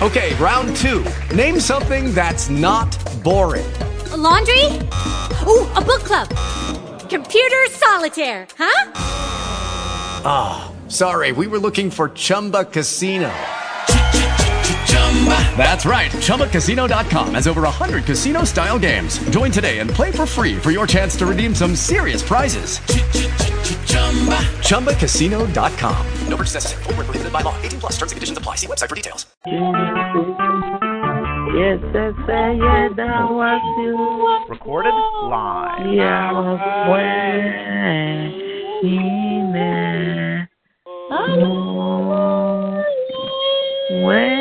Okay, round two. Name something that's not boring. A laundry? Ooh, a book club. Computer solitaire, huh? Ah, oh, sorry, we were looking for Chumba Casino. That's right. ChumbaCasino.com has over 100 casino style games. Join today and play for free for your chance to redeem some serious prizes. Chumba. ChumbaCasino.com. No purchase necessary. Full prohibited by law. 18 plus terms and conditions apply. See website for details. Yes, yes, yes, that was you. Recorded live. Yeah, was when, when, when,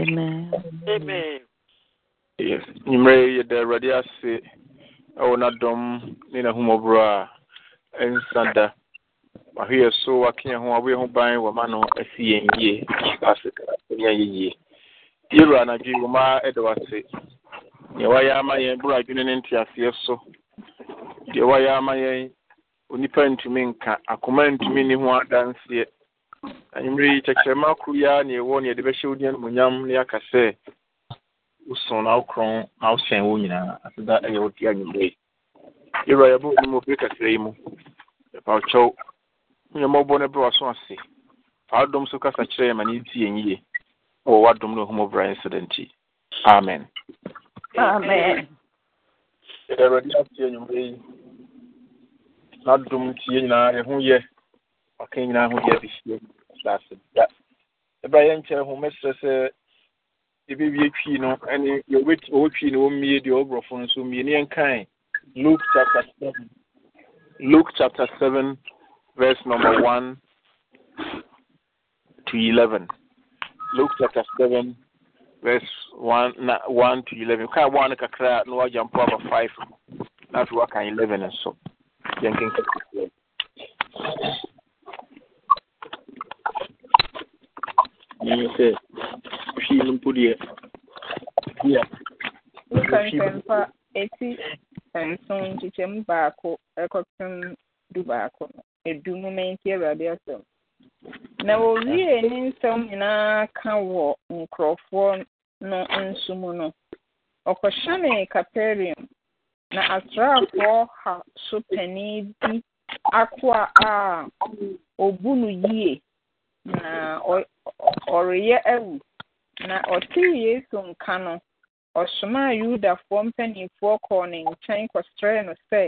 Amen. Amen. Yes. Nyimire yɛ da awurade ase ɛwɔ n'adɔm ne n'ahummɔborɔ a ɛnsa da. Wahwe yɛ so wake yɛn ho wabɔ yɛn ho ban wɔma no asi yɛn yie ase yɛn yɛ yie. Yɛwura anadwo yi wɔma ɛda wase. Deɛ wayɛ ama yɛn boro adwene ne nteaseɛ so. Deɛ wayɛ ama yɛn onipa ntumi nka akoma ntumi ne ho adanseɛ. anwummere yi kyɛkyerɛma koro yi ara na ɛwɔ na yɛde bɛhyɛ wo dia animonyam na yɛaka sɛ wosom na wokorɔn na wosɛn wɔ nyinaa aseda ɛyɛ wo de anwummere yi yɛwura yɛbɔ wo mu ofiri kakra yi mu yɛpa wo kyɛw nyɛmmɔbɔ no brɛ waso ase fa wodom so kasa kyerɛ yɛ ma ne nti yɛn yie na wɔwɔ adom no ahummɔ bra ɛnsɛ da nti amen yɛde awurade ate anwummere yi n'adom nti yɛ nyinaa yɛho yɛ ɔka nyinaa ho yɛ de hyia asase da ɛbra yɛ nkyɛn ho mɛsrɛ sɛ yɛbɛwie twii no ɛne ɔwɔ twii no wɔmmie deɛ ɔborɔfo no nso mmie ne yɛnkae luke chapter seven luke chapter seven verse number one to eleven luke chapter seven verse one one to eleven kaa one kakra na mpo aba five na afei waka eleven nso yɛnkenkan. menim sɛ hwii no mpo deɛ nkankɛmpa ɛti nson nkyekyɛm baako ɛkɔpem du baako no ɛdu mu mɛnti awurade asɛm na wɔwie ne nsɛm nyinaa ka wɔ nkurɔfoɔ no nso mu no ɔkɔhyɛne caperium na asraafoɔ ha so panin bi akoa a ɔbu no na ọrịa ewu na ọtee Yesu nka no ɔsomaa Yudafoɔ mpanimfoɔ kɔɔ ne nkyɛn kɔsrɛɛ no sɛ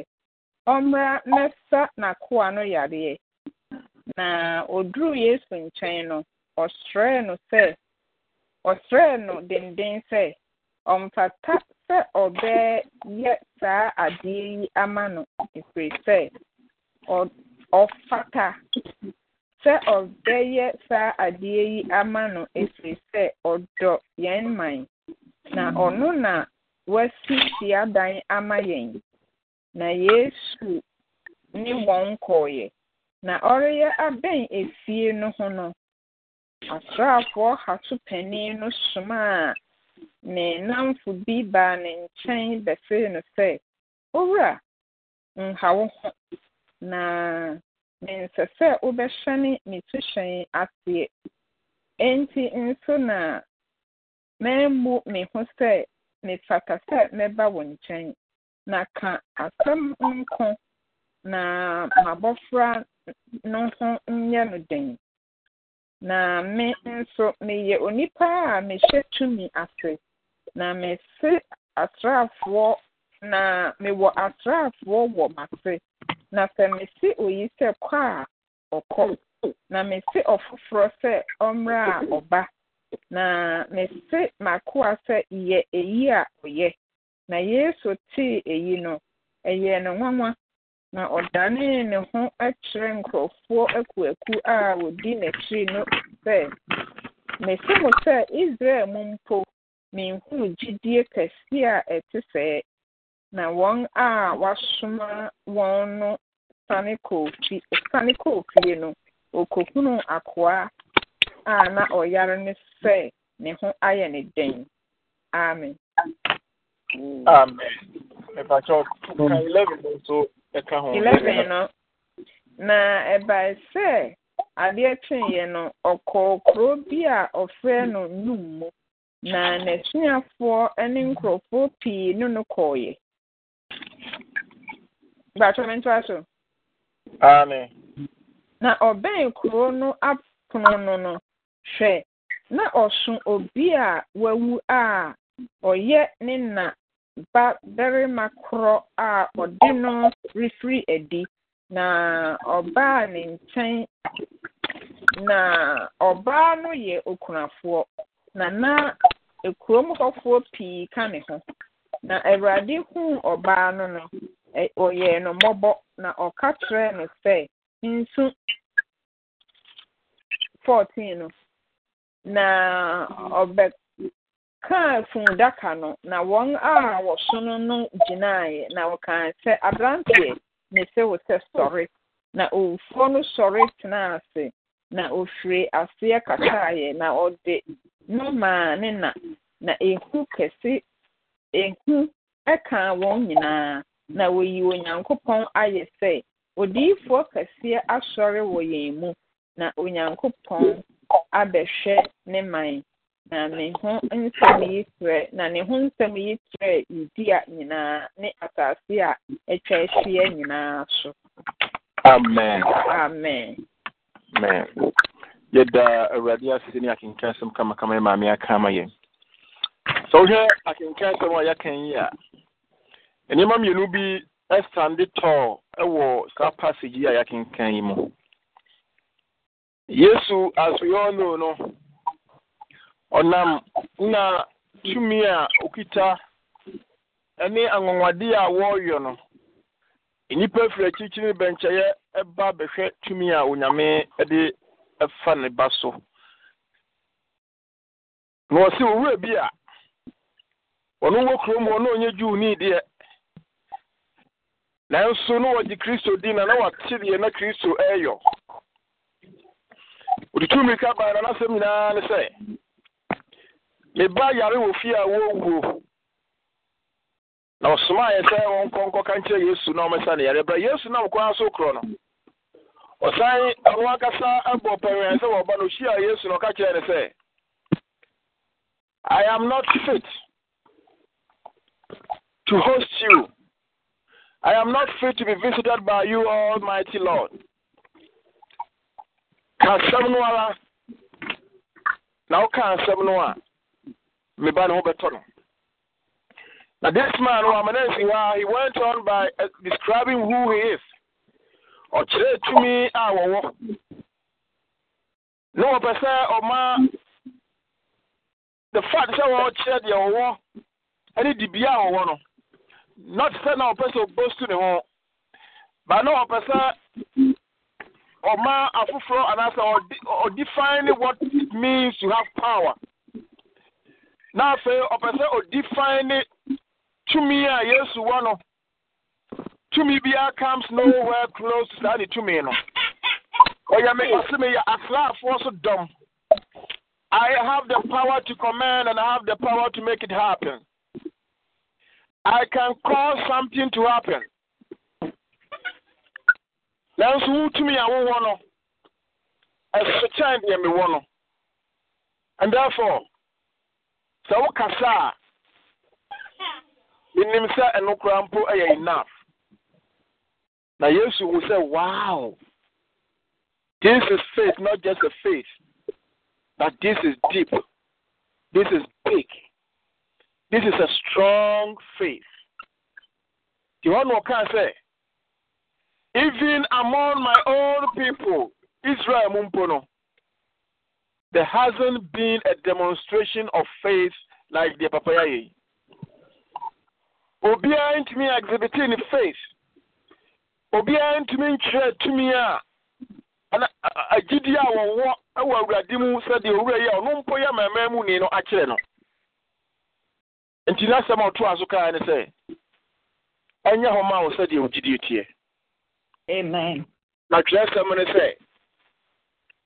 ɔmmra mmɛsa n'akoa no yareɛ na oduruu Yesu nkyɛn no ɔsrɛɛ no sɛ ɔsrɛɛ no denden sɛ ɔmfata sɛ ɔbɛyɛ saa adeɛ yi ama no ɛfiri sɛ ɔfata sɛ ɔbɛyɛ saa adeɛ yi ama no ɛfiri sɛ ɔdɔ yɛn man na ɔno na wasi siadan ama yɛn na yesu ne wɔn kɔɔeɛ na ɔreyɛ abɛn efie no ho no asraafoɔ hato panin no somaa ne nnamfo bi baa ne nkyɛn bɛsee no sɛ owura nha wo ho na nsɛ sɛ wobɛhyɛne ne suhyɛn aseɛ enti nso na memmu me ho sɛ mefata sɛ mɛba wo nkyɛn na ka asɛm nko na m'abɔfra no ho nyɛ no den na me nso meyɛ onipa a mehyɛ tumi ase na mese asraafoɔ na mewɔ asraafoɔ wɔ m'ase na sɛ mesi oyi sɛ kɔ a ɔkɔ na mesi ɔfoforɔ sɛ ɔmmerɛ a ɔba na mesi makoa sɛ yɛ eyi a ɔyɛ na yesu tii eyi no ɛyɛɛ ne nwanwa na ɔdanee ne ho kyerɛ nkurɔfoɔ akuaku a wɔdi n'akyiri no sɛ mesi mo sɛ israel mu mpo menhunu gyidie kɛseɛ a ɛte sɛɛ na wọn a wasoma wọn no sane kɔɔ fie sane kɔɔ no akoa a na ɔyare ne sɛ ne ho ayɛ ne den amen. amen. ɛpakyɛw ka eleven no na ɛbae sɛ adeɛ kyeeɛ no ɔkɔɔ kuro bi a ɔfrɛ no num mu na n'asuafoɔ ne nkurɔfoɔ pii ne no kɔɔeɛ. Bàtà m ntụa Na ọbɛn kuro no apono no no, hwɛ, na ɔso obi a wawu a ɔyɛ ne na ba barima korɔ a ɔde no refiri adi, na ọbaa ne nkyɛn, na ọbaa no yɛ okunafoɔ, na na ekurom hɔfoɔ pii ka ne ho, na Awurade huu ɔbaa no no. ɔyɛɛ no mọbọ na ɔka kyerɛɛ no sɛ nsu 14 no na ɔbɛkaa fundaka no na wọn a wɔsono no gyinaeɛ na wɔkaa sɛ aberanteɛ ne se wo sɛ sɔre na owufoɔ no sɔre ase na ofiri aseɛ kakaeɛ na ɔde no ne na na ehu kɛse ehu ɛkaa wɔn nyinaa na woyi Onyankopɔn ayɛ sɛ odiyifoɔ kɛseɛ asɔre wɔ yɛn mu, na Onyankopɔn abɛhwɛ ne man. Na ne ho nsɛm yi trɛ na ne ho nsɛm yi trɛ Yudea nyinaa ne asase a atwa ahyia nyinaa so. Amen. Amen. Amen. Yɛda Awurade ase ne akenka asɛm kamakama maame aka ama yɛn. Sɛ wohwɛ akenka asɛm a yɛaka yi a nneɛma mmienu bi ɛstande tɔɔ ɛwɔ saa passage yi a yɛakenkan yi mu yesu as we all know no ɔnam na tumi a okita ɛne anwanwadeɛ a wɔreyɛ no nnipa firi akyirikyiri bɛnkyɛeɛ ɛba bɛhwɛ tumi a onyame ɛde ɛfa ne ba so na ɔse owura bi a ɔno wɔ kurom hɔ na ɔnyɛ juu nii deɛ nanso na wɔgye kristo din na na wate deɛ na kristo ɛyɔ wɔde tu mmirika baa na n'asɛm nyinaa ne sɛ ne ba yare wɔ fie a wɔwuo na ɔsomaa yɛ sɛ wɔnkɔ nkɔka nkyerɛ yesu na ɔmɛsa ne yare bra yesu na ɔkɔa so korɔ no ɔsan ɔno ankasa abɔ pɛwɛn sɛ wɔba no ɔhyia yesu na ɔka kyerɛ ne sɛ i am not fit to host you I am not free to be visited by you, Almighty Lord. Ka asɛm no ara na woka asɛm no a meba Now this man, Wamanensiwa, ah, he went on by eh, describing who he is. Ɔkyerɛ tumi a wɔwɔ. Na wɔpɛ sɛ ɔma the fact sɛ wɔkyerɛ deɛ wɔwɔ ne dibea a wɔwɔ no not sɛ na ɔpɛ sɛ ɔbɔ stu ne ho ba na ɔpɛ sɛ ɔma afoforɔ anaasɛ ɔdefine what it means to have power na afei ɔpɛ sɛ ɔdefine tumi a yesu wɔ no tumi biara comes nowhere close to saa ne tumi no ɔyɛ me ɔse meyɛ asraafoɔ so dɔm I have the power to command and I have the power to make it happen. I can cause something to happen. me want wotumi a wowɔ no ɛsekyɛn deɛ mewɔ and therefore sɛ wokasa say? In sɛ ɛno koraa mpo ɛyɛ enough yes, yesu will say, wow this is faith not just a faith but this is deep this is big this is a strong faith. The one who can say, even among my own people, Israel Mumpono, there hasn't been a demonstration of faith like the Papayaye. obiara ntumi exhibiting ne faith obiara ntumi nkyerɛ tumi a ana agyidi a wɔwɔ wɔ awurade mu sɛdeɛ owura yi a ɔno mpo yɛ mmarima mu ni no akyerɛ no nti n'asɛm a ɔtoa so kaa ne sɛ ɛnyɛ hɔ ma wo sɛdeɛ wo gyidie teɛ amen na twerɛsɛm ne sɛ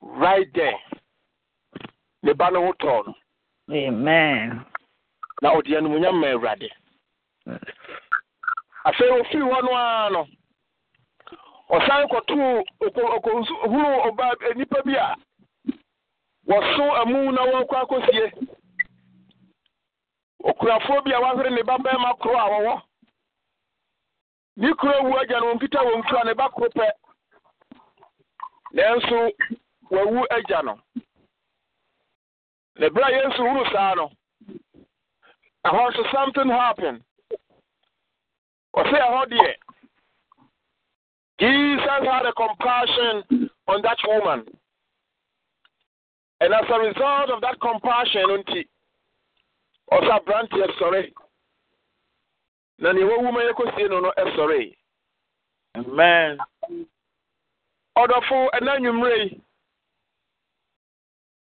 right there ne ba no ho tɔɔ no amen na ɔde anomunyam ma awurade afei ofiri hɔ no ara no ɔsan kɔtoo hunu ɔbaa nipa bi a wɔso amu na wɔnkɔ akɔsie okurafoɔ bi a wahwere ne ba bɛrima koro a wɔwɔ ne kuro wu agya no wɔnkita wɔn kura ne ba koro pɛ nanso wawu agya no na bere a yesu wuru saa no ɛhɔ nso something happen ɔsɛ ɛhɔ deɛ jesus had a compassion on that woman and as a result of that compassion nti ɔsɛ aberanteɛ sɔre na nea wawu ma yɛkɔsie no no ɛsɔre amen ɔdɔfo ɛna nnwummerɛ yi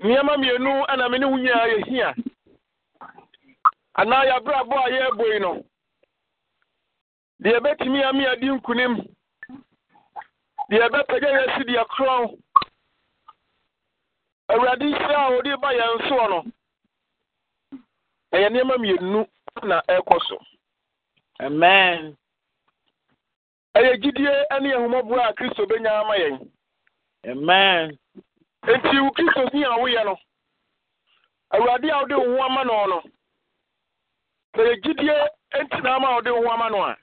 nneɛma mmienu ɛna me ne wo nyinaa yɛhia anaa yɛabrabɔ a yɛrebɔ yi no deɛ ɛbɛtumi ame adi nkunim deɛ ɛbɛpagya yɛasi deɛ korɔn awurade hyira a ɔde ba yɛn ɛyɛ nneɛma mmienu na ɛrekɔ so amen ɛyɛ gyidie ne ahomɔboa a kristo bɛnya ama yɛn amen nti wo kristo ni a woyɛ no awurade a wode wo ho ama no no ɛyɛ gyidie nti ama a wode wo ho ama no a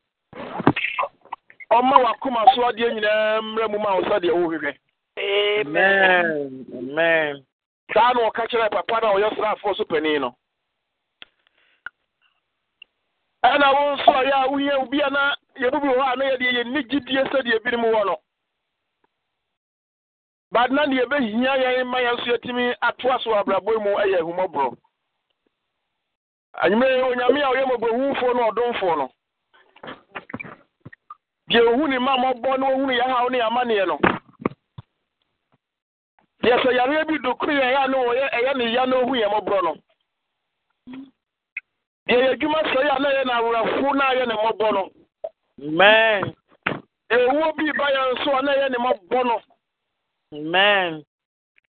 ɔma wakoma so adeɛ nyinaa mmerɛ mu ma wo sɛdeɛ wohwehwɛ amen amen saa na ɔka kyerɛ papa no a ɔyɛ sraafoɔ so panin no ɛna wo nso a yɛ a woyɛ obi a na yɛbubu hɔ a na yɛdeɛ yɛnni gyidie sɛdeɛ binom wɔ no but na deɛ ɛbɛhia yɛn ma yɛn nso yɛtumi atoa so abrabɔ mu yɛ ahummɔborɔ anwummerɛ yɛ onyame a ɔyɛ mmɔborɔhufoɔ no ɔdomfoɔ no deɛ ohu ne ma mmɔbɔ na ohunu yɛ haw ne amanneɛ no deɛ sɛ yareɛ bi dokoro a na ɛyɛ ne ya na ohu yɛn mmɔborɔ no yɛyɛ adwuma sɛ na yɛ na na yɛ ne mmɔbɔ no amen ɛwuo bi ba yɛn nso a na yɛ amen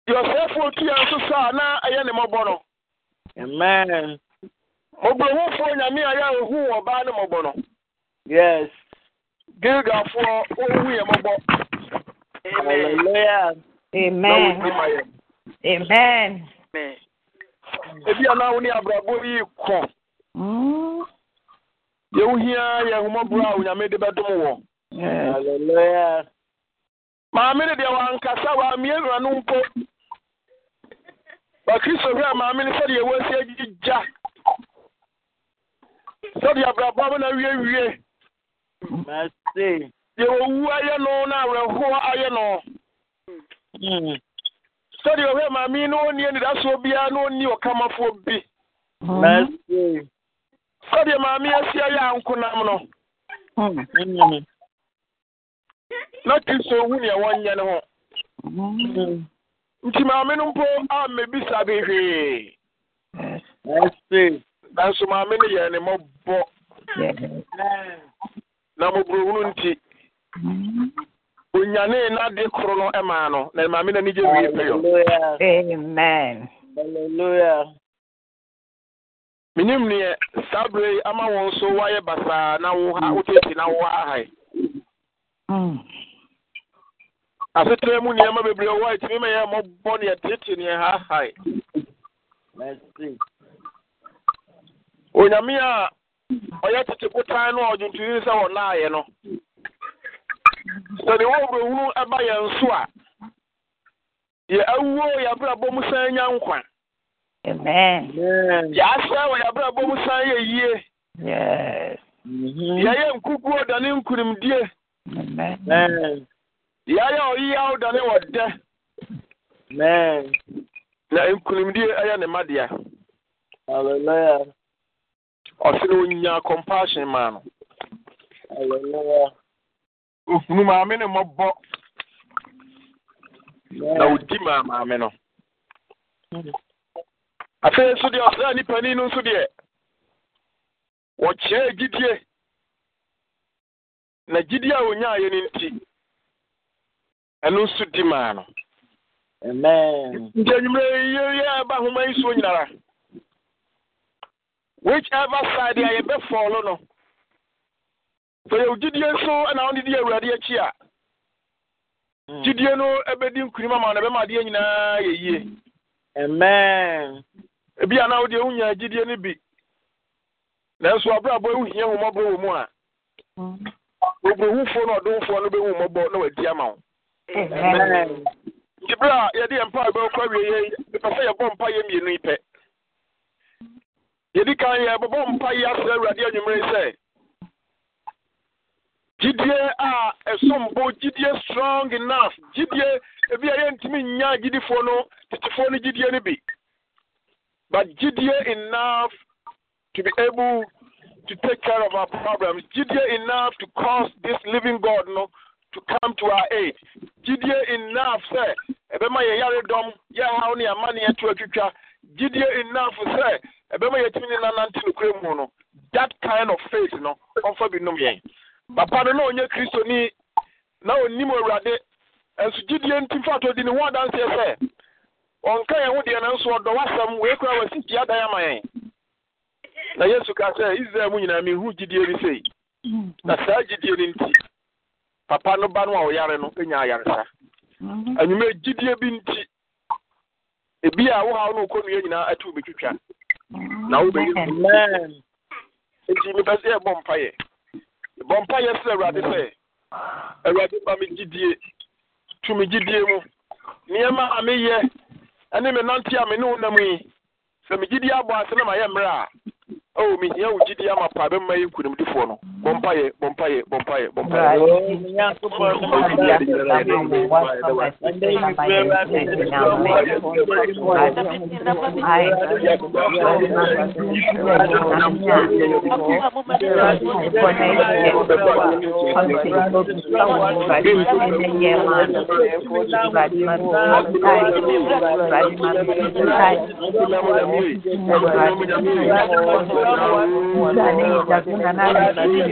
deɛ ɔsɛefoɔ tu yɛn a na ɛyɛ ne amen mɔborɔhufoɔ nyame a yɛ ɛhu wɔ ɔbaa ne Amen. Amen. Ebi deɛ hmm? wohia yɛ nhomɔborɔ a onyame de bɛdom wɔ eh. maame no deɛ wankasa wammie wura no mpo bakristohwɛ a maame no sɛdeɛ wɔasi agyigya sɛdeɛ abrabɔ na wiewie deɛ wɔwu ayɛ no na awerɛhoɔ ayɛ no hmm. sɛdeɛ ɔhwɛ maame no ɔnni anidasoɔ biara na ɔnni ɔkamafoɔ bi hmm. sɛdeɛ maame asia yɛ anko nam no na kristo hu neɛ wɔnyɛ ne ho nti maame no mpo ammɛbisa behwee nanso maame no yɛ ne mɔbɔ na mmɔborɔhunu nti onyanee n'ade koro no ɛmaa no na maame no wie menim neɛ saa bere ama wɔn so wayɛ basaa na wo ha mm. wotete na wo ahae mm. asetere mu nneɛma bebree wɔ a ɛtumi ma yɛ mmɔbɔ neɛ tete neɛ hahae onyame a ɔyɛ tete kotan no a ɔdwontoni sɛ wɔnaayɛ no sɛdeɛ wɔwerɛhunu ɛba yɛn so a yɛ awuo yɛ abrabɔ mu san nya nkwa Amen. Amen. wọ yàbẹ̀rẹ̀ bọ́mu san yẹ yie. Mm-hmm. Yàyẹ nkukuo dani nkunimdie. Yàyẹ ọyíyá dani wọ dẹ. Na nkunimdie ẹyẹ ne madea. Hallelujah. Ọsiri onyinya compassion maa no. Hallelujah. Ohunu maame ne mmɔbɔ. Na odi maa maame no. Mm -hmm. afei nso deɛ ɔsra nipa ni no nso deɛ wɔkyerɛ gyidie na gyidie a nti ɛno nso di maa no nti anwummerɛ yɛyɛ yi nyinara side a yɛbɛfɔɔlo no sɛ yɛwo gyidie na wode di awurade akyi a gyidie no ɛbɛdi ama no ɛbɛma adeɛ nyinaa ebi a na wo deɛ wonya agyidie no bi nanso abrabɔ wohia homɔbɔ wɔ mu a oburohufoɔ no ɔdomfoɔ no bɛhu mmɔbɔ na wadi ama wo nti berɛ a yɛde yɛ mpa bɛwokɔ awie yɛ mepɛ sɛ yɛbɔ mpa yɛ mmienu yi pɛ yɛdi kan yɛbɛbɔ mpa yi asrɛ awurade anwummere sɛ gyidie a ɛsombo gyidie strong enough gyidie ebi a yɛntumi nnya gyidifoɔ no tetefoɔ no gyidie no bi but Gideon enough to be able to take care of our problems. Gideon enough to cause this living God no, to come to our aid. Gideon enough, sir. Ebema ye yaredom, ye how ni amani etu etwitwa. Gideon enough, sir. Ebema ye timi na nante nukure mu no. That kind of faith no, onfa bi num yen. Papa no na onye Kristo ni na onim Awurade. Enso Gideon timfa to di ne ho adanse sɛ ɔnka yɛn ho deɛ nanso ɔdɔ wasɛm wei kora wasi tia dan ama yɛn na yesu ka sɛ israel mu nyinaa mehu gyidie bi sei na saa gyidie no papa no ba no a ɔyare no ɛnya ayaresa mhm. anwuma gyidie bi nti ebi a wo haw no okɔnnua nyinaa atu bɛtwitwa mhm. na wobɛyi nti mepɛ sɛ yɛbɔ mpayɛ bɔ mpayɛ sɛ awurade sɛ awurade ba me gyidie tu me gyidie mu nneɛma a meyɛ ɛne me nante a me ne wo nam yi sɛ me gyidi abɔ ase na mayɛ mmerɛ a ɛwɔ mehia wo gyidi ama pa bɛma yi nkonimdifoɔ no bompaye bompaye bompaye bompaye Thank you.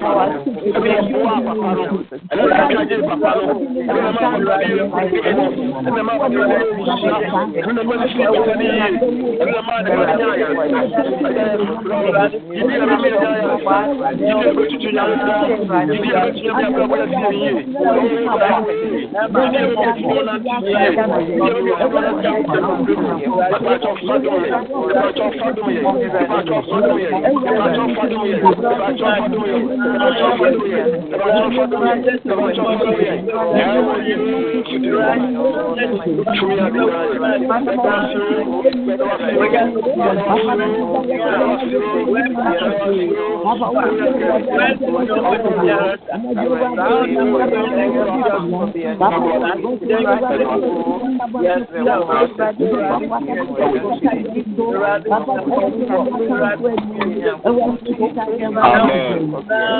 Ìbájọ́ fọdún yẹn, ìbájọ́ fọdún yẹn, ìbájọ́ you.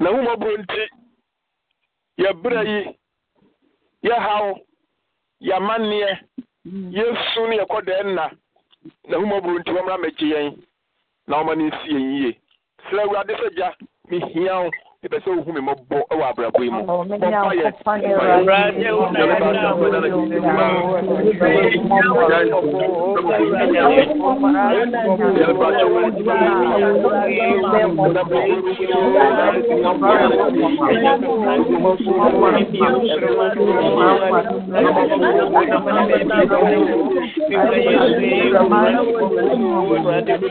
na ahụmọbụrụ nti yɛbrɛ yi yɛhaw yɛamanneɛ yɛsu no yɛkɔ dɛɛ nna na ahụmọbụrụ nti wɔmmra mmɛgye yɛn na wɔma no nsi yɛn yie srɛ awurade sɛ gya mehia wo ebe ohun mi mo Thank you. Awurade mu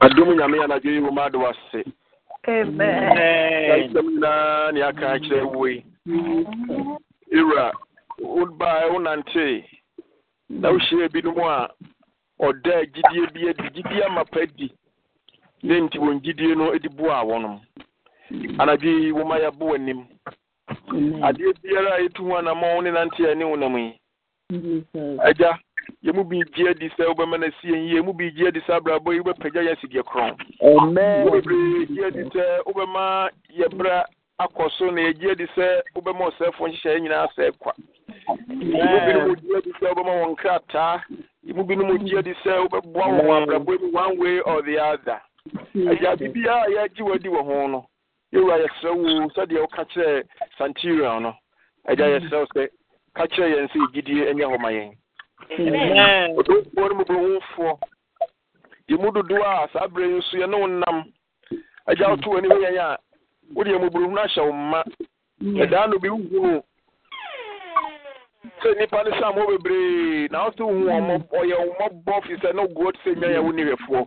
adom nyame anadwo yi woma ade wase asɛm nyinaa ne aka akyerɛ wo yi ewura wobaɛ wonantee na wohyiaa binom a ɔda gyidie bi adi gyidie amapa di ne nti wɔn gyidie no de boaa wɔnom anadwo yi woma yɛbo w'anim adeɛ biara a ɛtu ho anamɔ wo ne nanteɛ ne wo nam yi agya yɛmu bi gye adi sɛ wobɛma no sie yie mu bi gye adi sɛ abrabɔ yi wobɛpagya yɛ asideɛ korɔn wobebree gye adi sɛ wobɛma yɛbra akɔ so na yɛgye adi sɛ wobɛma ɔsɛfo nhyehyɛeɛ nyinaa sɛ kwa mu binom gye sɛ wobɛma wɔn krataa mu binom gye sɛ wobɛboa wɔn abrabɔ one way or the other agya a yɛagye wɔ ho no yɛwura yɛsrɛ wo sɛdeɛ woka kyerɛ no agya yɛsrɛ wo sɛ ka kyerɛ yɛn sɛ hɔ ɔdomfoɔ no mu bɛwufoɔ yɛmu dodoɔ a saa berɛ yi nso yɛne wo nam agya woto w'ani ho yɛn a wode yɛ mmɔborɔhunu ahyɛ wo mma ɛdaa hmm. no bi wohunu sɛ nnipa no sɛ mmɔ bebree na wo sɛ wohu ɔyɛ hmm. wo mmɔbɔ firi sɛ na woguɔ te sɛ nwa yɛ wo nihwɛfoɔ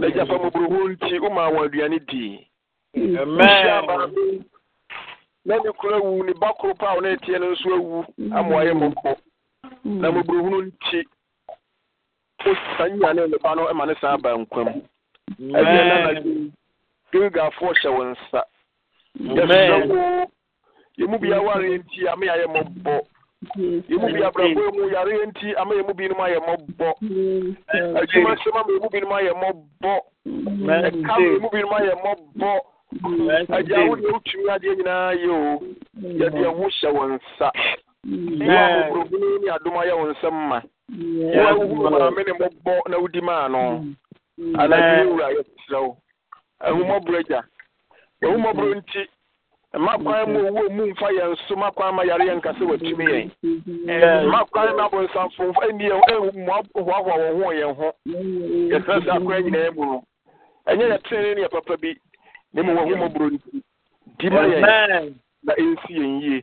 na agya pa mmɔborɔhu nti womaa wɔn aduane dii na ne kura wu ne ba koro pa a wo ne ɛteɛ no nso awu hmm. ama ɔyɛ mmɔkɔ Hmm. na mmɔborɔhunu nti saa nyane nnipa no ma ne san aba nkwa mu ɛdeɛ na na gilgafoɔ hyɛ wo nsa yɛsrɛ wo yɛmu bia wareɛ nti ama yɛayɛ mmɔbɔ yɛmu bi abrabɔ mu yareɛ nti ama yɛmu binom ayɛ mmɔbɔ hmm. adwuma sɛm ama yɛmu binom ayɛ mmɔbɔ ɛka ma yɛmu binom ayɛ mmɔbɔ agya wodeɛ wotumi adeɛ nyinaa yɛ o yɛde ɛho hyɛ wo nsa Mm. Yes. Ni aduma ya nsɛm ma. Wo wo maame ne mɔbɔ na wodi maa no. Mm. Ala ni wura yɛ wo. Ahumɔborɔ mm. agya. Ahumɔborɔ nti mu owu mu mfa yɛn so mmakwan ma yare yɛn nkasa watumi yɛn. Mm-hmm. Mmakwan na abonsamfo mfa ni yɛn mmoahoahoa wɔn ho yɛn ho. Mm-hmm. no. Ɛnyɛ yɛ tene papa bi. Ne mu wɔ nti. Di ma yɛn na ɛnsi yɛn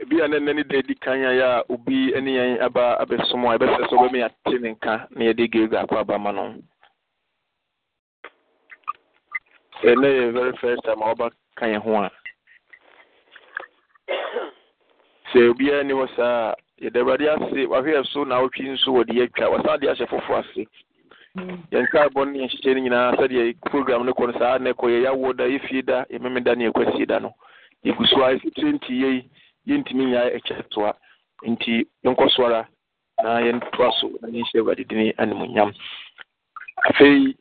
ebi a ne kan ya obi ne yɛn aba abɛsom a ɛbɛsɛ ate ne nka na yɛde gilgal akɔ aba ma no ɛnɛ e yɛ very first time a ka yɛn ho a sɛ obiara ni wɔ saa yɛde awurade ase wahwɛ so na awotwi nso wɔde atwa wasan de ahyɛ foforɔ ase yɛn nkaabɔ ne yɛn hyehyɛ no nyinaa sɛdeɛ program no kɔ no saa na ɛkɔ yɛ yawoɔ da yɛfie da da ne da no yɛgu so a twenty yɛntumi nyinaa ɛkyɛ nti yɛnkɔ so na yɛntoa so na yɛnhyɛ awurade dini animonyam afei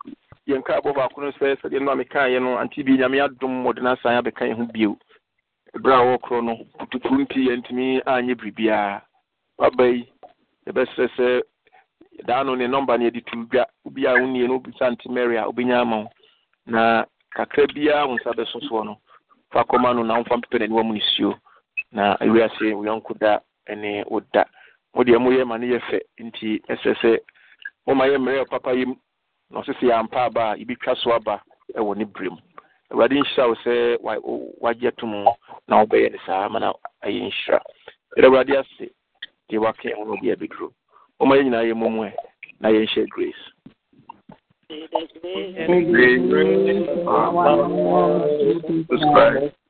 yɛnka abɔ baako no sɛ sɛdeɛ no a mekaeɛ no ante bi nyame adom wɔde no asan abɛka yɛ ho bio ɛberɛ a wɔkorɔ no putukuru nti yɛntumi anyɛ biribiaa waba yi yɛbɛsrɛ sɛ daa no ne nɔmba no yɛde tu dwa obi a wonnie no wobisa nte mary a wobɛnya ama wo na kakra biaa wo nsa bɛso no fa kɔma no na womfa mpepɛ n'aniwa mu ne na ewi ase yɔnko da ne wo mo deɛ moyɛ ma no yɛ fɛ nti ɛsɛ sɛ moma papa yi mu na ɔsɛ sɛ aba a twa so aba ɛwɔ ne berɛ mu awurade nhyira wo sɛ wagye to mu na wobɛyɛ no saa ma na ɛyɛ nhyira ɛdɛ awurade ase deɛ nyinaa yɛ ɛ grace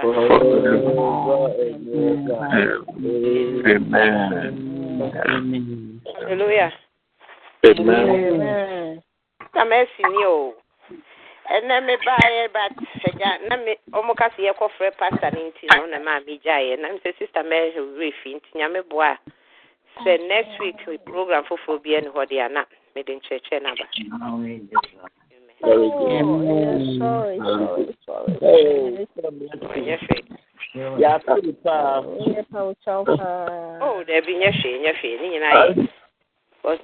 forevermore. Amen. Amen. Hallelujah. Amen. Na mercy ni o. Ɛnna mi ba yɛ ba sɛgya na mi ɔmo ka si yɛ kɔ frɛ pasta ne nti na ɔna maa mi gya yɛ na mi sɛ sista mɛ yɛ wura fi nti nyame boa sɛ next week program foforɔ bi ɛni hɔ de ana mi de nkyerɛkyerɛ Very oh, good. Amen. Sorry, mm. Mm. sorry, sorry. Hey. yàtọ̀ nípa. o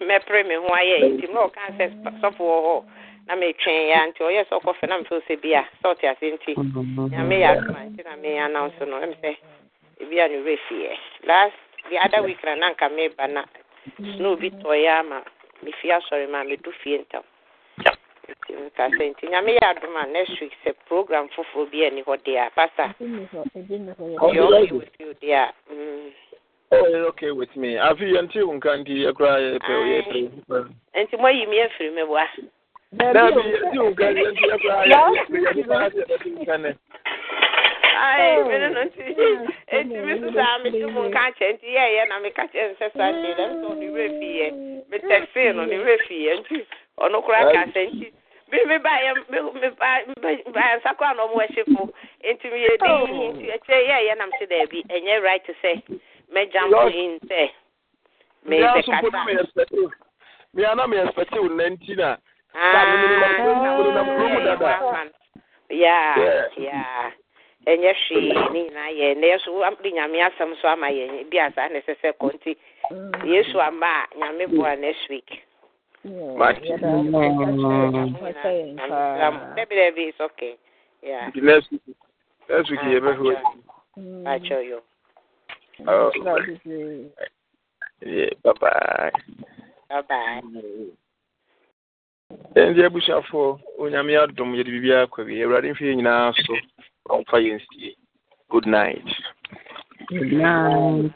mɛpere ho ayɛ nti ɔka sɛ hɔ na mi twɛn nti ɔyɛ sɛ ɔkɔfɛ na bia sɛ ɔte ase nti nti na no sɛ last the other week na na na obi ama asɔre ma mi fie ntam. Um. nti nka sɛ nti nyame yɛ adom a next week sɛ program foforɔ bi ani hɔ deɛ a pasa yɛ okay with you deɛ a mm. Oh, okay with me. Afi yɛnti wo nka nti yɛkora yɛpɛ yɛpɛ. Nti moayi e me afiri me boa. Na bi yɛnti wo nka nti yɛkora yɛpɛ yɛpɛ Ai, oh. mene no nti eti mi sisa mi ti mu nka kyɛ nti yɛ yɛ na mi ka kyɛ nsɛ sa kyɛ dɛm sɛ ɔne wɛ fi yɛ mi tɛksi no ne wɛ fi yɛ nti ɔno koraa ka sɛ nti bi mi ba yɛ mi ba ba nsakɔ a e na ɔmo ɛhyɛ fo nti mi yɛ di nti ɛkyɛ yɛ ɛyɛ nam si dɛbi ɛnyɛ right sɛ mɛ jam in sɛ mɛ sɛ kasa. mi ana mi ɛspɛti o nɛnti na. yaa yaa ɛnyɛ hwee ne nyinaa yɛ na yɛso de nyame asɛm so ama yɛn bi asa na ɛsɛ sɛ kɔ nti mm. yesu ama a nyame boa next week dabidabi um, um, is okay yeah the next week next week yẹ bẹ fún mi. Bàtchọ yọ. Oh. Yeah, bye bye. Bye bye. ndị abusuafo onyame adom yɛde biribi akɔ wie awurade mfeɛ nyinaa so ɔmfa yɛ nsie good night, good night.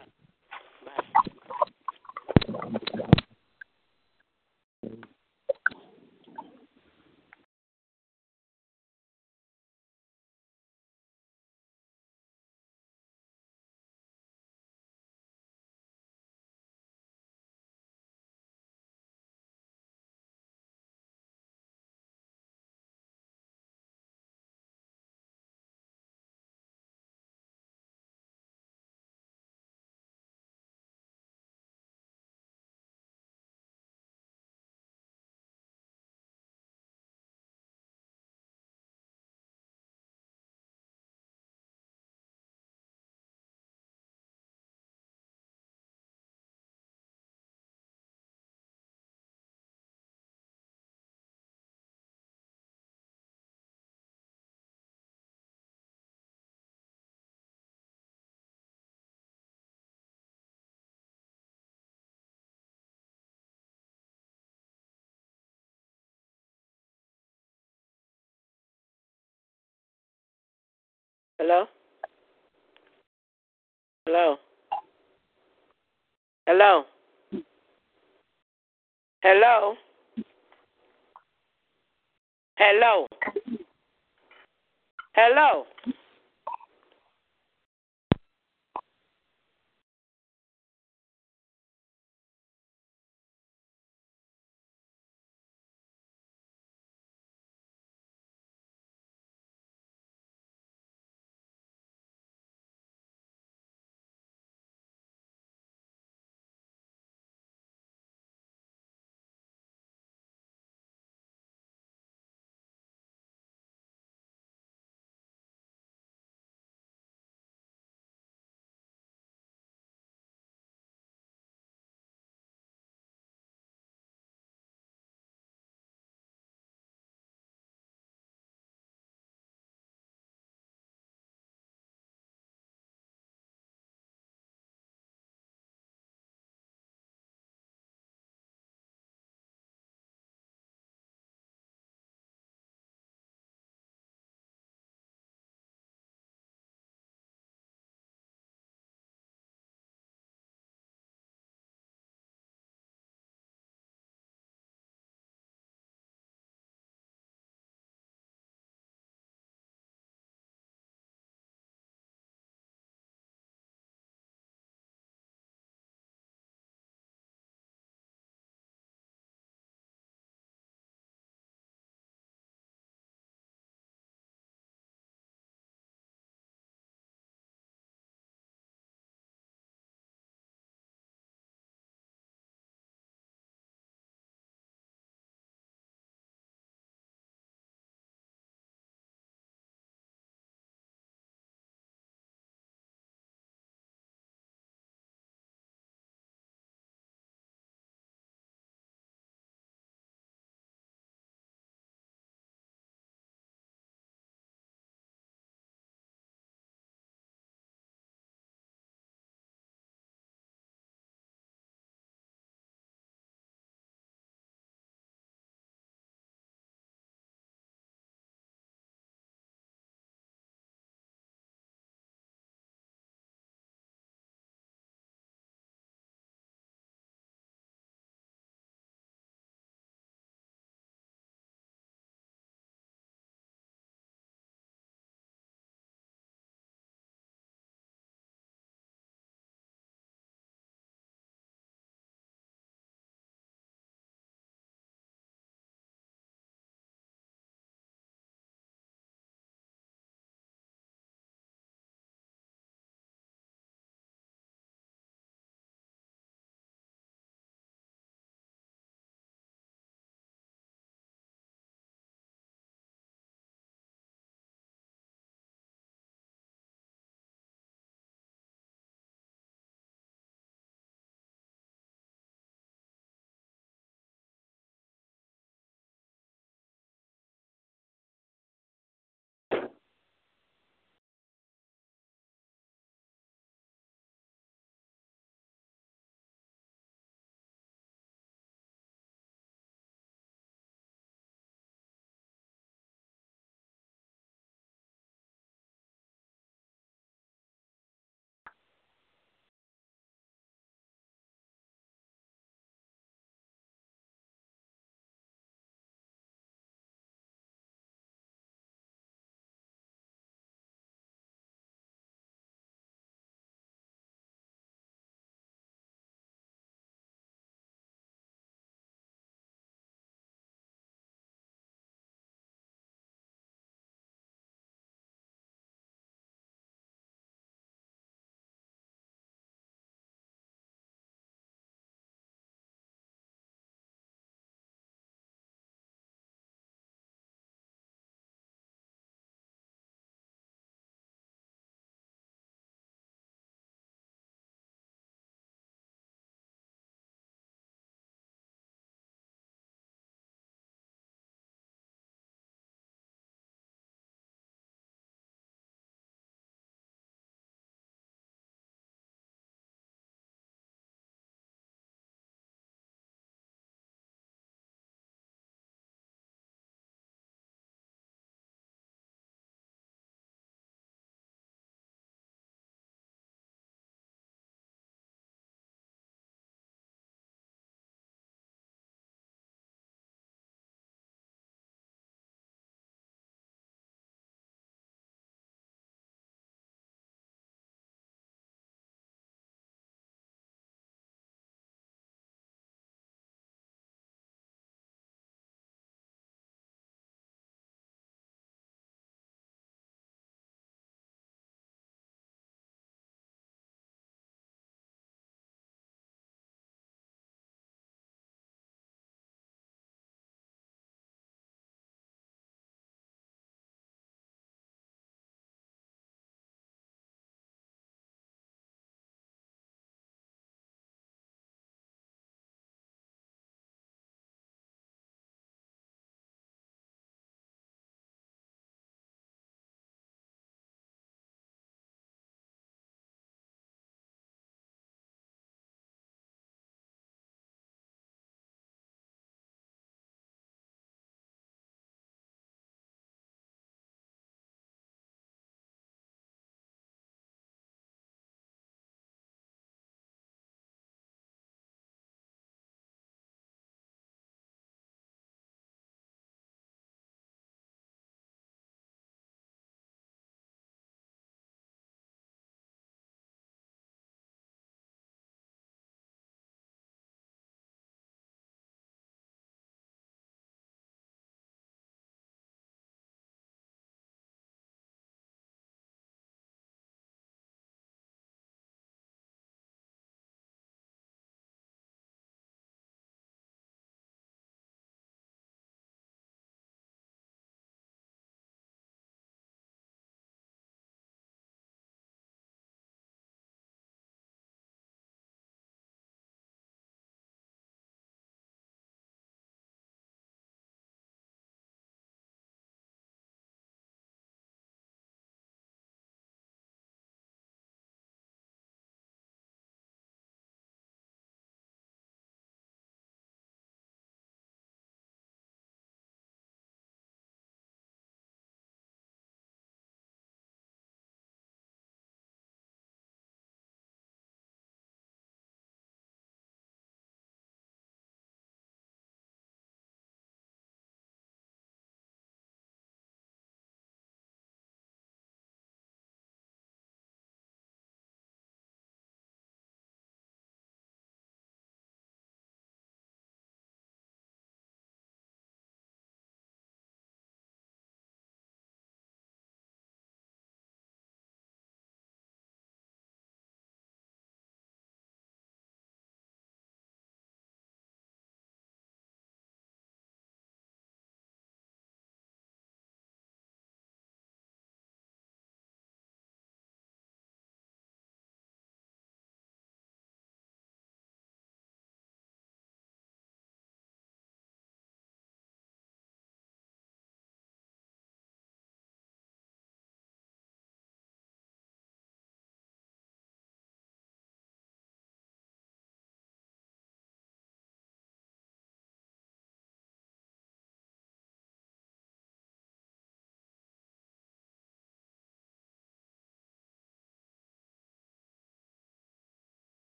Hello? Hello? Hello? Hello? Hello? Hello?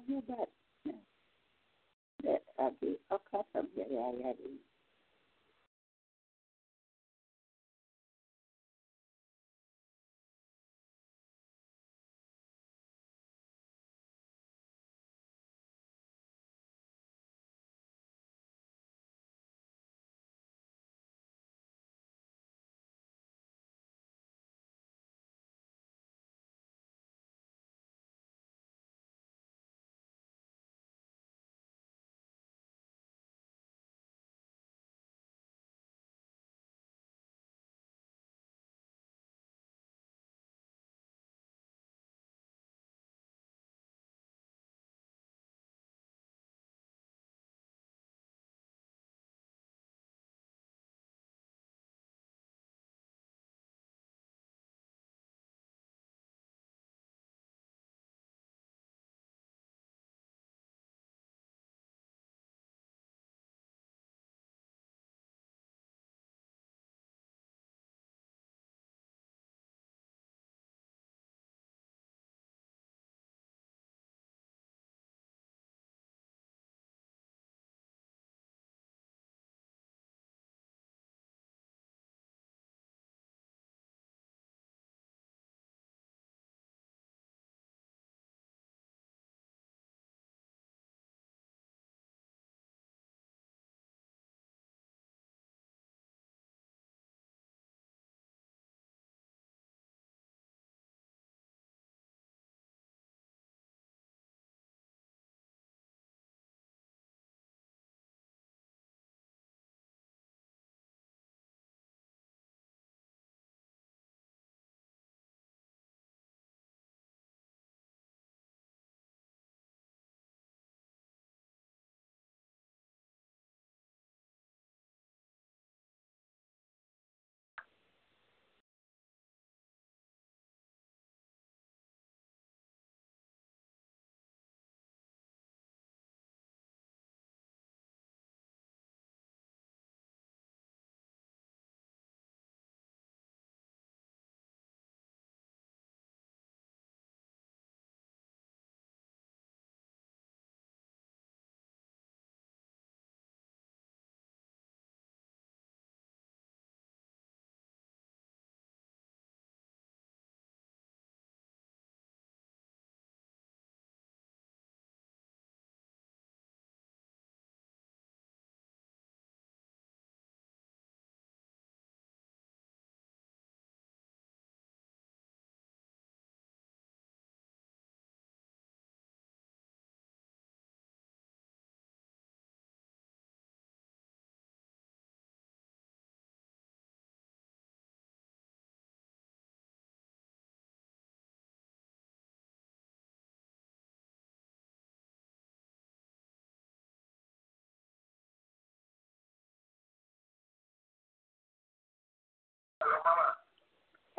अब ये बात है अब ये औखा सब जगह है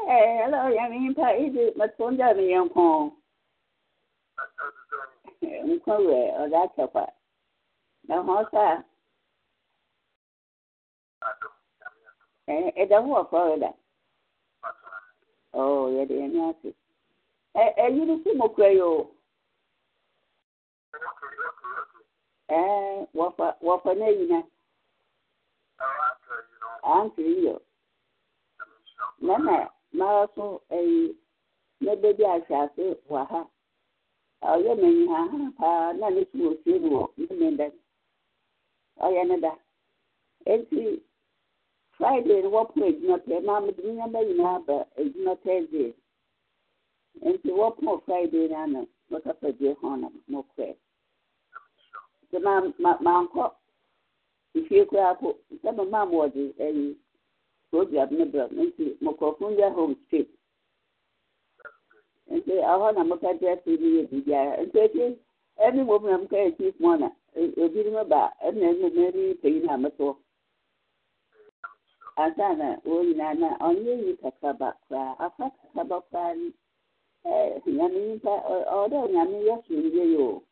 Hey, hello, Yamin pa idu matunda mi yanko. Mkwe oda chapa. Na hosa. Eh, eda huwa O oda. Oh, yede yanyasi. Eh, eh, yiri si mkwe yo. Eh, wafa, wafa ne yina. Antri yo. Mama, mara eyi ɛyi na bɛbi ahyɛ ase ha ɔyɛ ha ha paa na ne si wɔ fie no wɔ ne da ɔyɛ friday no na adwuma pɛ maa mi de ne nyɛma nyinaa ba adwuma thursday na mo kɔɛ nti maa koraa ko ka obi adịmba nti nkurɔfoɔ ndị ahụ mfe nti ahụ na mụ kacha esi n'ihe ebi biara nti echi ɛni mo na na obi ni mo ba ɛna ɛna ɛni peyi na mo so na wɔn nyinaa na yi kakraba koraa afa kakraba koraa ni ɛɛ nyame o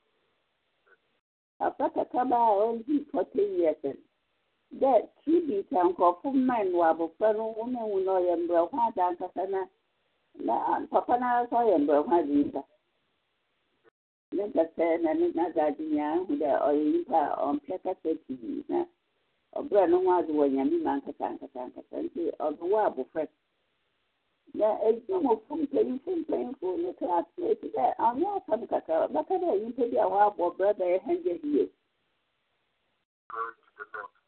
afa kakraba a dɛ tibita nkurɔfo mmɛn wɔ abɔfra no wɔn ehu na ɔyɛ mbrɛko ankasa na na papa n'ara sɛ ɔyɛ mbrɛko adi nsa ne nkasa na ne n'adze adi nyinaa ahu dɛ ɔyɛ nipa a ɔmpɛ kasa na ɔbɛrɛ ne ho adze wɔ nyame ma nkasa nkasa nkasa nti wɔ na edi mpanyinfo mpanyinfo ne dɛ dɛ bi a wɔabɔ brɛ bɛyɛ years.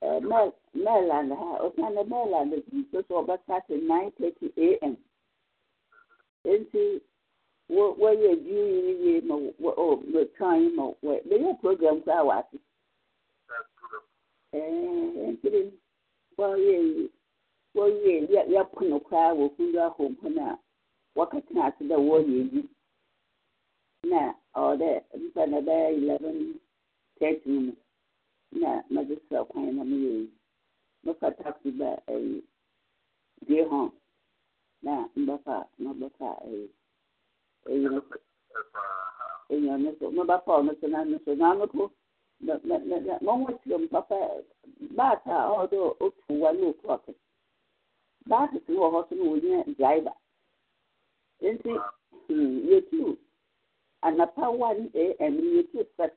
Uh, Maryland ha Oceana Maryland nsoso ɔbɛka ọba nine 9:30 a.m. nti wɔyɛ ji yiri yie ma ọ ɔ mɛtwan ma wɔ bɛyɛ program koraa wɔ ase ɛɛ ntiri wɔyɛ ya wɔyɛ yɛ yɛpono koraa wɔ kundwa home hɔn a na ɔwɔ na bɛyɛ mu. na mɛde srɛ kwan na mmiri yi mɛfa taxi ba ɛyi die hɔ na mbɛfa mabɛfa ɛyi ɛyi ɛyi ɔno so mɛbɛfa ɔno so na no so na ano ko na na na na wɔn wɔ kyerɛ mu papa baata a ɔwɔ otu wa na otu si wɔ hɔ so na driver nti yɛtu anapa one am yɛtu first.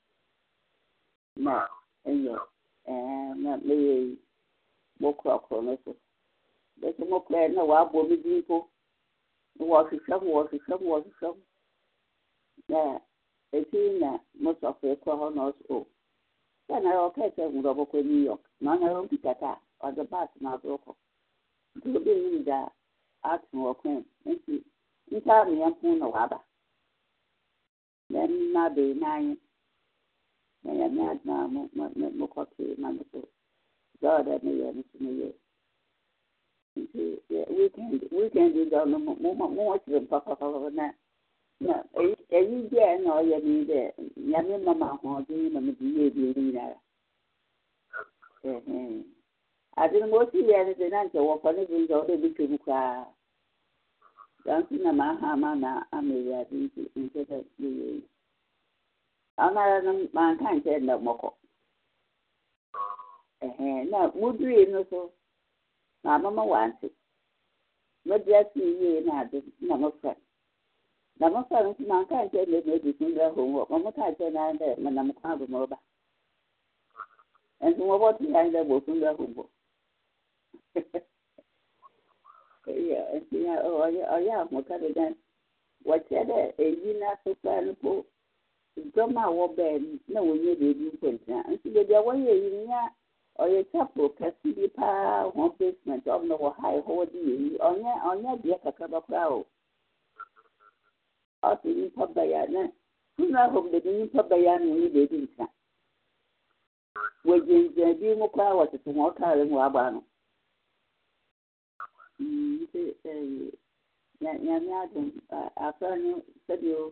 ma ɛyɛ ɛɛ eh, na meyɛ yi mokɔkɔrɔ no so bɛsɛ mokɔɛ na wɔabɔ me din mpo na wɔhwehwɛ m wɔhwehwɛ m m na ɛti na mosɔfo kɔ hɔ na ɔso sɛ na ɔkɛɛ sɛ wurɔbɔkɔ new york na ɔna a ɔde baase na nti obi da wɔ nti na na n'anye mụkọta na God adịghị wikendi ga mụnwechiri m papapapa na eyi ndị a na ọya niile ya me mma ma ahụ ọdị na m dị ihe ebi eri nara adịrị m otu ya dị na nke wọkwanị bụ ndị ọrụ ebike bụkwa ga ntị na m aha ama na amịrị adị nke na-eyi amaranụ ma nke a nke na ọgbakọ na mudiri no so mama ma wante madi na adi na mofra na mofra no ma nke na ebi ebi kun ma hɔn na dɛ manam kwan do mɔba nso mɔbɔ ti so dɔm a wɔbaa na wɔnyɛ baabi nkwanhyia nso baabi a wɔyɛ yi nya ɔyɛ chapel kɛse bi paa wɔn basement ɔm na wɔ ha ɛhɔ wɔde yɛ yi ɔnyɛ ɔnyɛ kakraba koraa o nipa na funeral home baabi nipa baya na wɔnyɛ baabi nka wɔgyinagyina bi mu koraa wɔtete wɔn mu no nti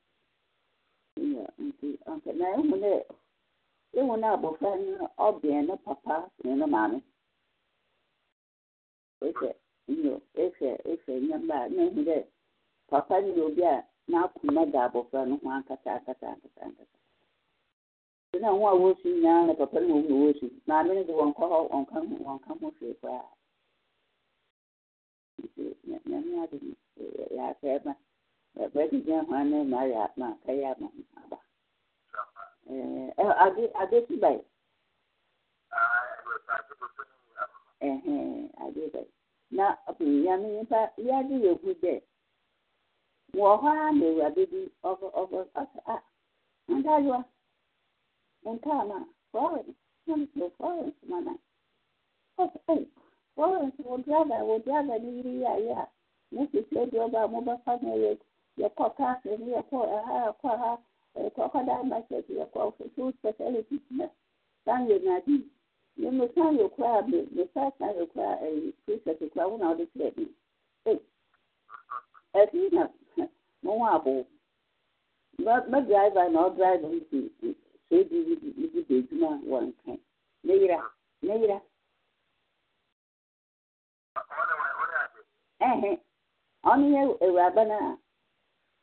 Iya, nti anka na ehu dɛ ehu na papa na ne maame. Ehwɛ nyo ehwɛ na papa obi a n'akoma da abɔfra no ho ankasa ankasa ankasa ankasa. wosu na papa na na wosu maame wɔn ka Ebedijahane Maria na Kaya Mama. Ade Ade Ade Na ya na nipa ya dị egwu dị. a a. ma Florence nam so Florence mana. Ɔkɔ ɛyi Florence wɔ driver wɔ driver ni yiri yɛ ayɛ a. Mo sisi ɔdi mo fa na yakwa pastors, yakwa yakwa ha kwakwadaa masters, yakwa full specialties na san yɛ nadi na mo san yɛ kura me me san san yɛ kura ɛyi precept kura wɔn a wɔde kyerɛ mi ɛfi na mo ho abo na edwuma ne yira ne yira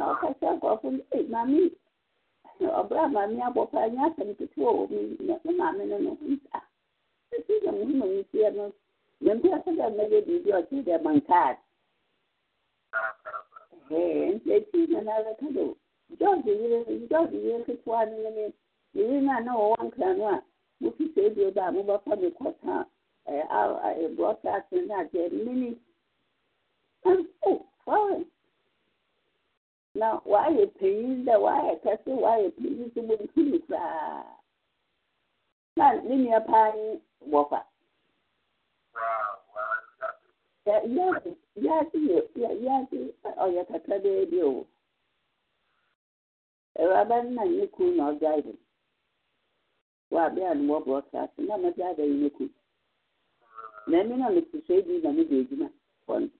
ນຂສກພເມາມີເອບມາມີບ່ພຍສນກທວີມາມລຊຮມມນພ່ສມດີແດມງດນລໂດທວນີນນງຂອນອມຄີເສດບມບ່ພມຄທອເສມນີ na wɔayɛ panyin dɛ wɔayɛ kɛ se wayɛ panyi so boum aa n ne mia paa ye bɔfa ase ase ɔyɛ kaka beɛ biwɔ ɔwaaban na nnɛ kuu na ɔdaeb wabi a no wɔbrɔ cas na madaaba nyino kum na mi na mete soe bi na mo deeduma n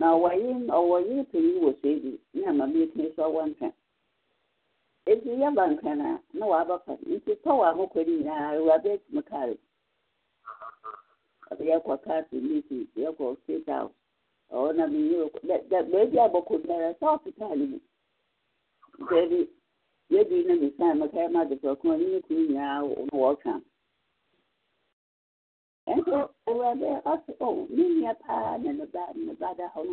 na ɔwɔye ɔwɔye panyin wɔ so ebi na maame etumi so ɔwɔ nkran eji yaba nkran a na waba pa nti tɔw a mokɔ ne nyinaa awuraba na mi yɛ dɛ dɛ beebi abɔkɔ biara south kaale mu beebi yɛbi na ຕືວ່າບອອມີພານບາບາດເຮົາຫນ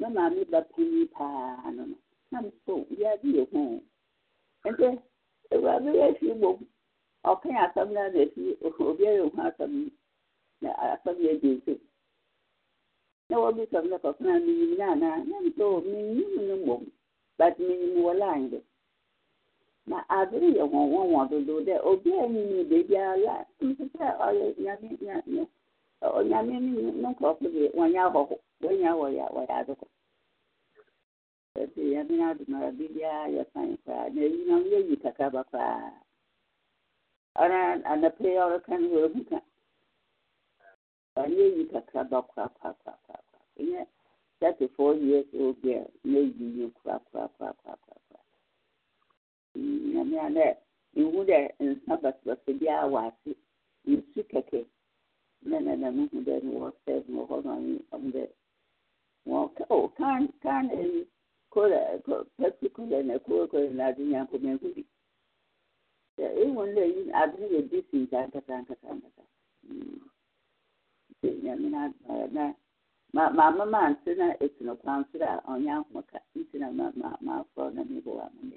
ມມາມີບດເພພານນນນໂຢີຮອນອວ່າມຊີມົງອກຂຍາຊນາີອຮຊດນມີສລເກນມີຫນານານນໂຕມຍນມົບມີມວລາຍດ na adịghị ọnwụnwa nwadodo de obi enyi ni bebi ala mpụta ọlụ onyame ni nokɔ kpebe wanya hɔ wanya wɔ ya wɔ ya adokɔ ya yɛbi na do mara bibia yɛ fain na eyi na yi kaka ba koraa ka yi na eyi yi koraa nyame a dɛ mehu dɛ nsa basabasa biara wɔ ase nsu kɛkɛ na na na mehu na kola kola na ade nyanko bi dɛ yi nyame na maama ma ante na kwan a ɔnyɛ na na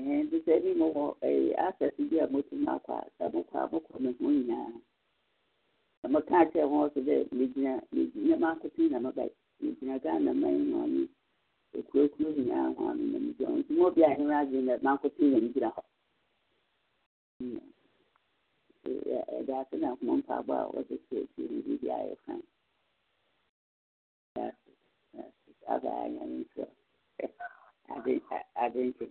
nti sɛ bi mowɔ access bi a motumi akɔ a sɛ mokɔ a mokɔ me ho nyinaa sɛ moka kyerɛ ho so dɛ megyina megyina maakotene na mɛbae megyina ghana man ho ne akuakuo nyinaa ho ano na megyina ho nti ma obi a ɛno adwene dɛ maakotene na megyina hɔ ɛda ase na akoma mpaabɔ a wɔde sɛ akyire no biribi ayɛ fan abaayɛ nyame nkyerɛ adwenkyerɛ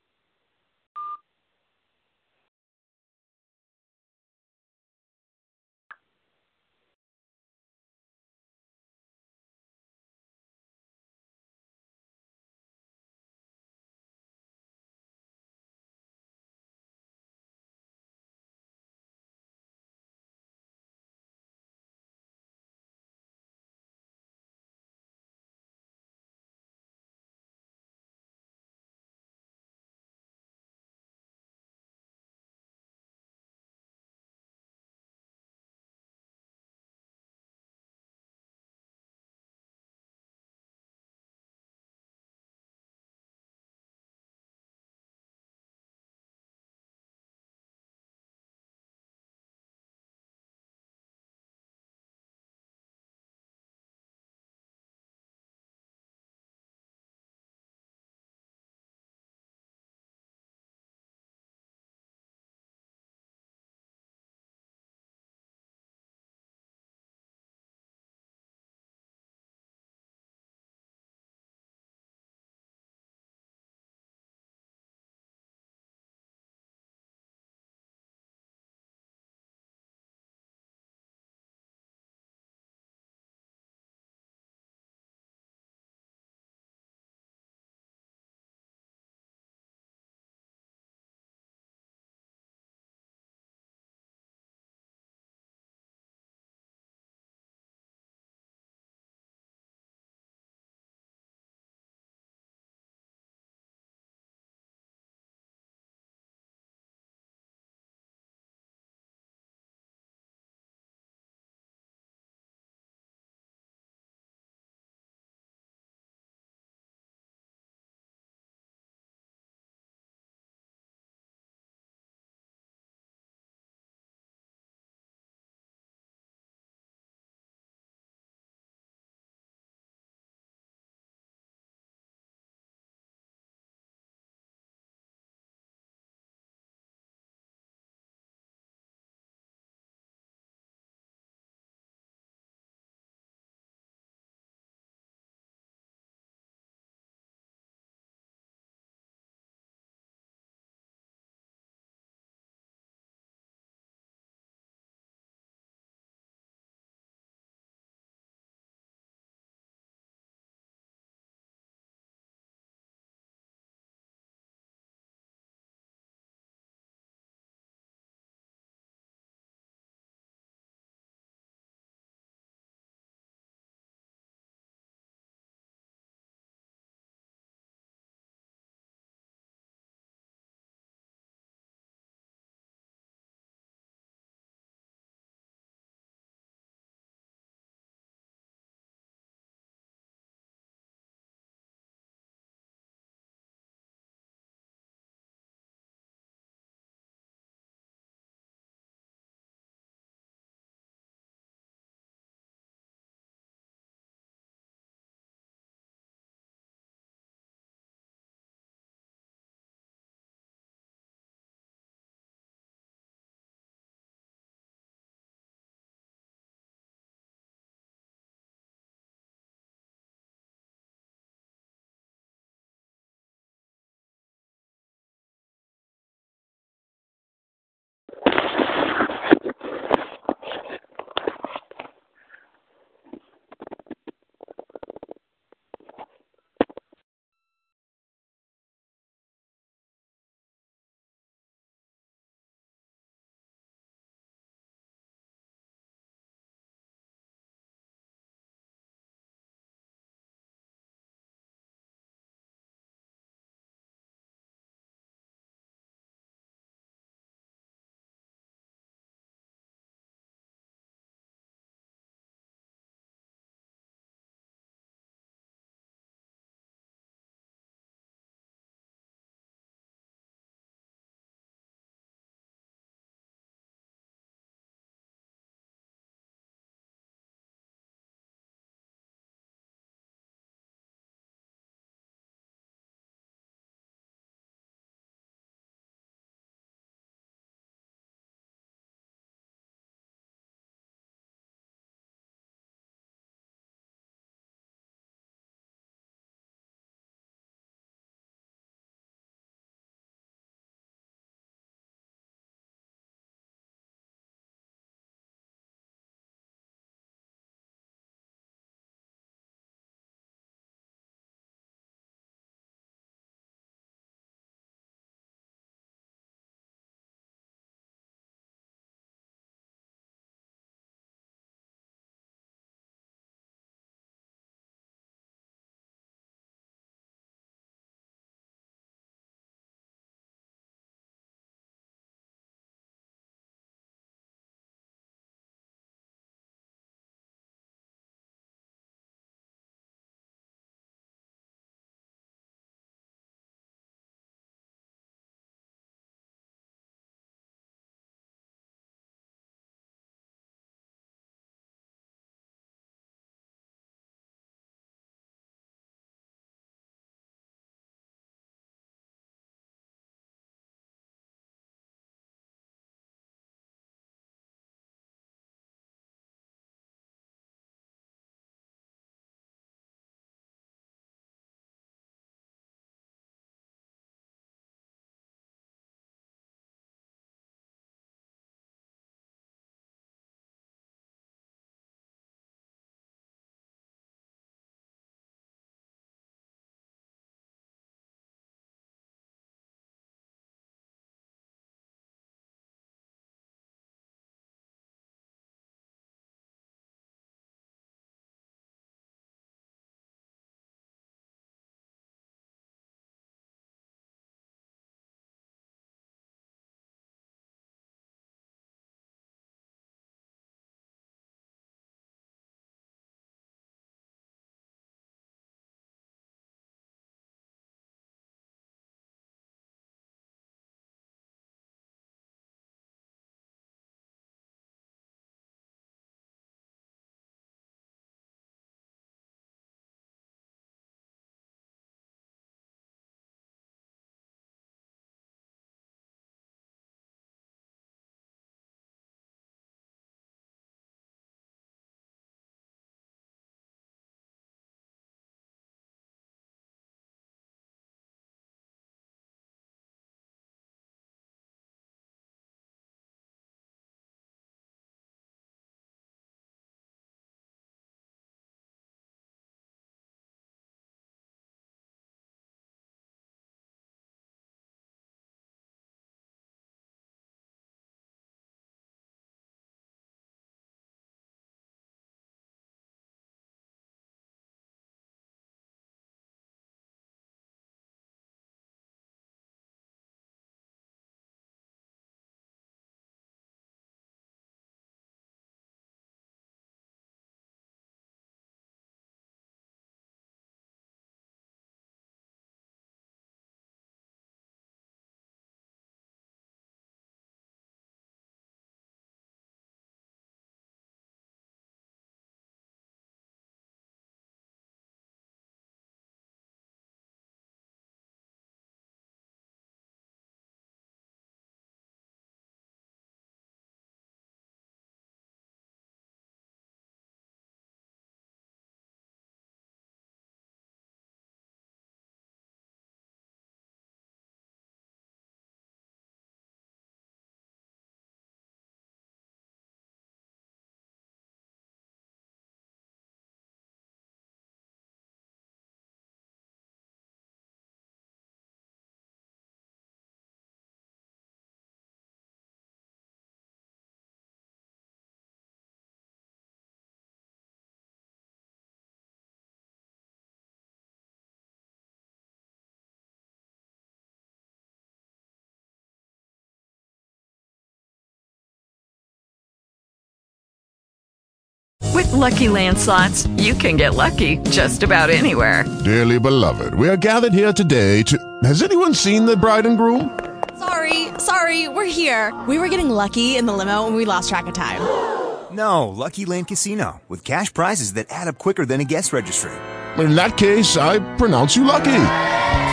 Lucky Land slots, you can get lucky just about anywhere. Dearly beloved, we are gathered here today to. Has anyone seen the bride and groom? Sorry, sorry, we're here. We were getting lucky in the limo and we lost track of time. No, Lucky Land Casino, with cash prizes that add up quicker than a guest registry. In that case, I pronounce you lucky.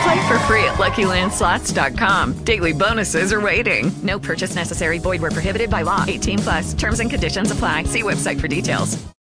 Play for free at LuckyLandSlots.com. Daily bonuses are waiting. No purchase necessary. Void where prohibited by law. 18 plus. Terms and conditions apply. See website for details.